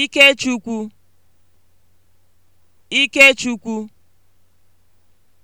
Ikechukwu Ikechukwu